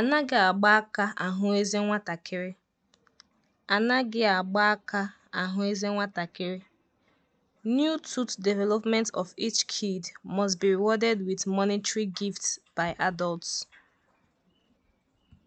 Anaghị agba aka ahụ eze nwatakịrị. Anaghị agba aka ahụ eze nwatakịrị. New tooth development of each kid must be rewarded with monetary gifts by adults.